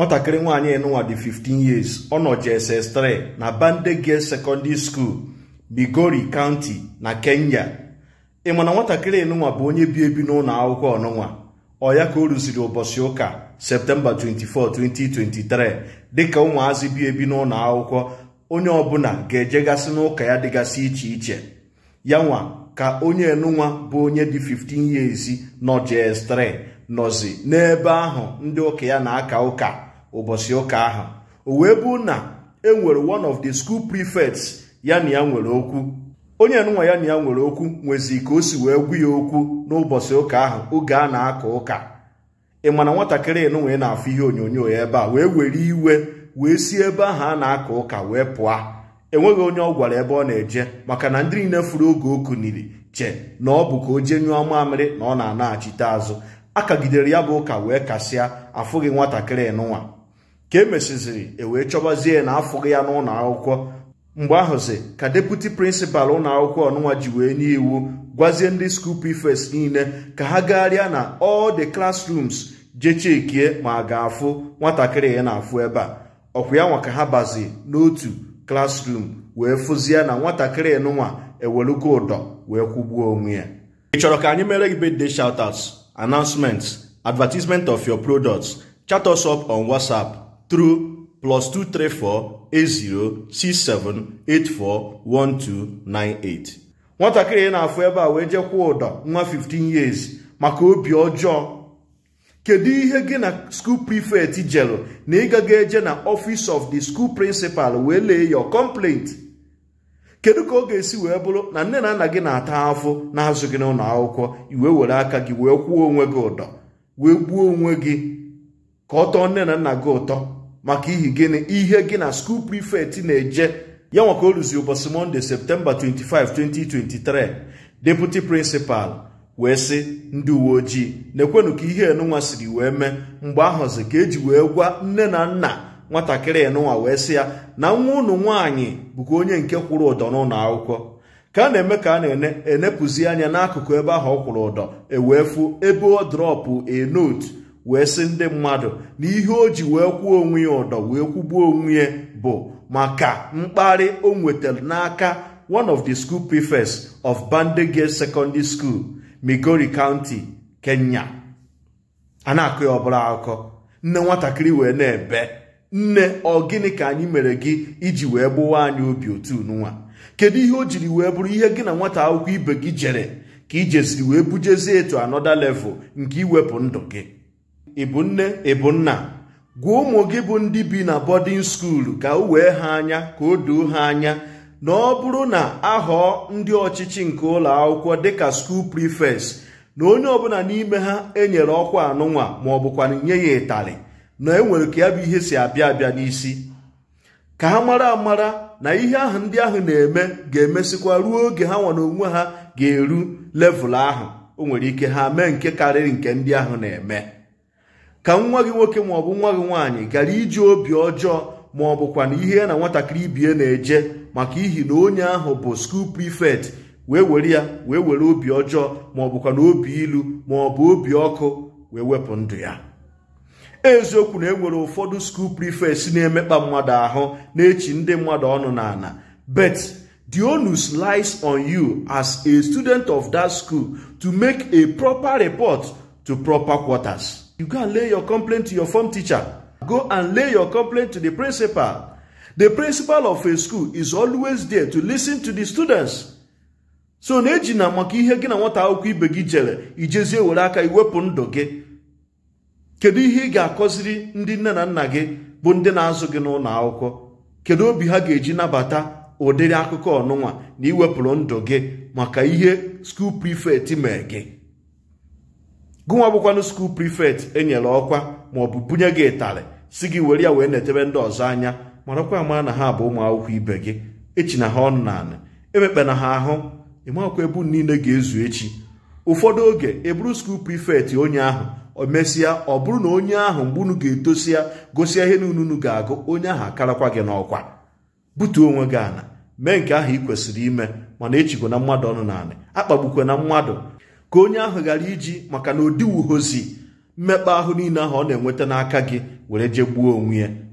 nwatakịrị nwaanyị enụnwa dị 15 years ọ nọ 3 na bandege Secondary School Migori County na Kenya ị ma na nwatakịrị bụ onye bi ebi n'ụlọ akwụkwọ ọnụnwa ọ ya ka o rụziri ụbọchị ụka Septemba 24 2023 dịka ụmụazị bi ebi n'ụlọ akwụkwọ onye ọbụla ga-ejegasị n'ụka ya dịgasị iche iche ya nwa ka onye enụnwa bụ onye dị 15 years nọ JS3 nọzi n'ebe ahụ ndị ụka ya na-aka ụka ụbọchị ụka ahụ o wee bụ na e nwere one of the school prefects ya na ya nwere okwu onye nụnwa ya na ya nwere okwu nwezi ka o si wee gwu ya okwu n'ụbọchị ụka ahụ oge a na akọ ụka ị mana nwatakịrị nụnwee na-afụ ihe onyonyo ya ebe a wee were iwe wee si ebe ahụ a na akọ ụka wee pụọ enweghị onye ọ gwara ebe ọ na-eje maka na ndị niile furu oge o kuniri che na ọ bụ ka o jee nyụọ mamịrị na ọ na-anaghachite azụ kagidere ya bụ ụka wee kasịa afụghị nwatakịrị nụnwa ka e mesịziri e wee chọbazie na afụghị ya n'ụlọ akwụkwọ mgbe ahụzi ka deputi prịnsịpal ụlọ akwụkwọ ọnụnwa ji wee nye iwu gwazie ndị skuul prefects niile ka ha gagharịa na all the classrooms jechekie ma ga-afụ nwatakịrị ya na-afụ ebe a ọkwa ya nwa ka ha bazi n'otu klasrum wee fụzie na nwatakịrị nụnwa ewelugo ụdọ wee kwụgbuo onwe ya ị chọrọ ka anyị mere gị birthday shoutouts announcements advertisement of your products chat us up on WhatsApp through plus 234 nwatakịrị na-afụ ebe a wee jekwa ụdọ nwa 15 years maka obi ọjọọ kedu ihe gị na school prefect jelụ na ịgaga eje na office of the school principal wee lee your complaint kedu ka ọ ga-esi wee bụrụ na nne na nna gị na-ata afụ na-azụ gị n'ụlọ akwụkwọ iwe were aka gị wee kwuo onwe gị ụdọ wee gbuo onwe gị ka ọ tọọ nne na nna gị ụtọ maka ihi gịnị ihe gị na skuul prifekt na-eje ya nwaka ka o ụbọchị mọnde septemba 25 2023 deputi prịnsịpal wee sị ndị uwe ojii na-ekwenụ ka ihe enunwa siri wee mee mgbe ahụzi ka eji wee gwa nne na nna nwatakịrị enunwa wee sị ya na nwa ụnụ nwaanyị bụkwa onye nke kwụrụ ụdọ n'ụlọ akwụkwọ ka a na-eme ka a na-enepụzi anya n'akụkụ ebe ahụ ọ kwụrụ ụdọ ewee fuo ebe ọ drọpụ a note wee sị ndị mmadụ na ihe o ji wee kwuo onwe ya ụdọ wee kwụgbuo onwe ya bụ maka mkparị o nwetara n'aka one of the school prefects of Bandege Secondary School Migori County Kenya a na-akụ ya ọbụla akụkọ nne nwatakịrị wee na-ebe nne ọ gịnị ka anyị mere gị iji wee gbụwa anyị obi otu nwa kedu ihe o jiri wee bụrụ ihe gị na nwata akwụkwọ ibe gị jere ka ijeziri wee bujezie etu anọda level nke iwepụ ndụ gị ịbụ nne ịbụ nna gwa ụmụ gị bụ ndị bi na bọdịn skuulu ka o wee ha anya ka o doo ha anya na ọ bụrụ na ahọọ ndị ọchịchị nke ụlọ akwụkwọ dịka skuul prifes na onye ọbụla n'ime ha enyere ọkwa anụnwa ma ọ bụkwana nye ya ịtarị na enwere ka ya bụ ihe si abịa abịa n'isi ka ha mara amara na ihe ahụ ndị ahụ na-eme ga-emesịkwa ruo oge ha nwa na onwe ha ga-eru levụl ahụ o nwere ike ha mee nke karịrị nke ndị ahụ na-eme ka nwa gị nwoke maọbụ nwa gị nwaanyị gara iji obi ọjọọ ma ọ bụkwa na ihe na nwatakịrị ibie na-eje maka ihi na onye ahụ bụ skuul prifekt wee were ya wee were obi ọjọọ ma ọ bụkwa na obi ilu ma ọ bụ obi ọkụ wee wepụ ndụ ya eziokwu na enwere ụfọdụ skuul prifekt na-emekpa mmadụ ahụ na-echi ndị mmadụ ọnụ n'ala bet the onus lies on you as a student of that school to make a proper report to proper quarters. You go and lay your complaint to your form teacher. Go and lay your complaint to the principal. The principal of a school is always there to listen to the students. So na-eji na maka ihe gị na nwata akwụkwọ ibe gị jere ijezie were aka iwepụ ndụ gị. Kedu ihe ị ga-akọziri ndị nne na nna gị bụ ndị na-azụ gị n'ụlọ akwụkwọ? Kedu obi ha ga-eji nabata ụdịrị akụkọ ọnụnwa na iwepụrụ ndụ gị maka ihe skuul prifekt mee gị? gụnwa bụkwanụ skuul prifekt enyere ọkwa bụ bunye gị ịtarị si gị were ya wee na-etebe ndị ọzọ anya marakwa ama na ha bụ ụmụ akwụkwọ ibe gị echi na ha ọnụ naanị emekpena ha ahụ ịmakwa ebu niile ga-ezu echi ụfọdụ oge eburu skul prifekt onye ahụ emesịa ọ bụrụ na onye ahụ mgbe unu ga-etosi ya gosi ihe na ununu ga-agụ onye ahụ akarakwa gị n'ọkwa butuo onwe gị ana mee nke ahụ ị kwesịrị ime mana echigwo na mmadụ ọnụ naanị akpagbukwe na mmadụ ka onye ahụ ghara iji maka na odiwuhozi mmekpa ahụ niile ahụ ọ na-enweta n'aka gị were jee gbuo onwe ya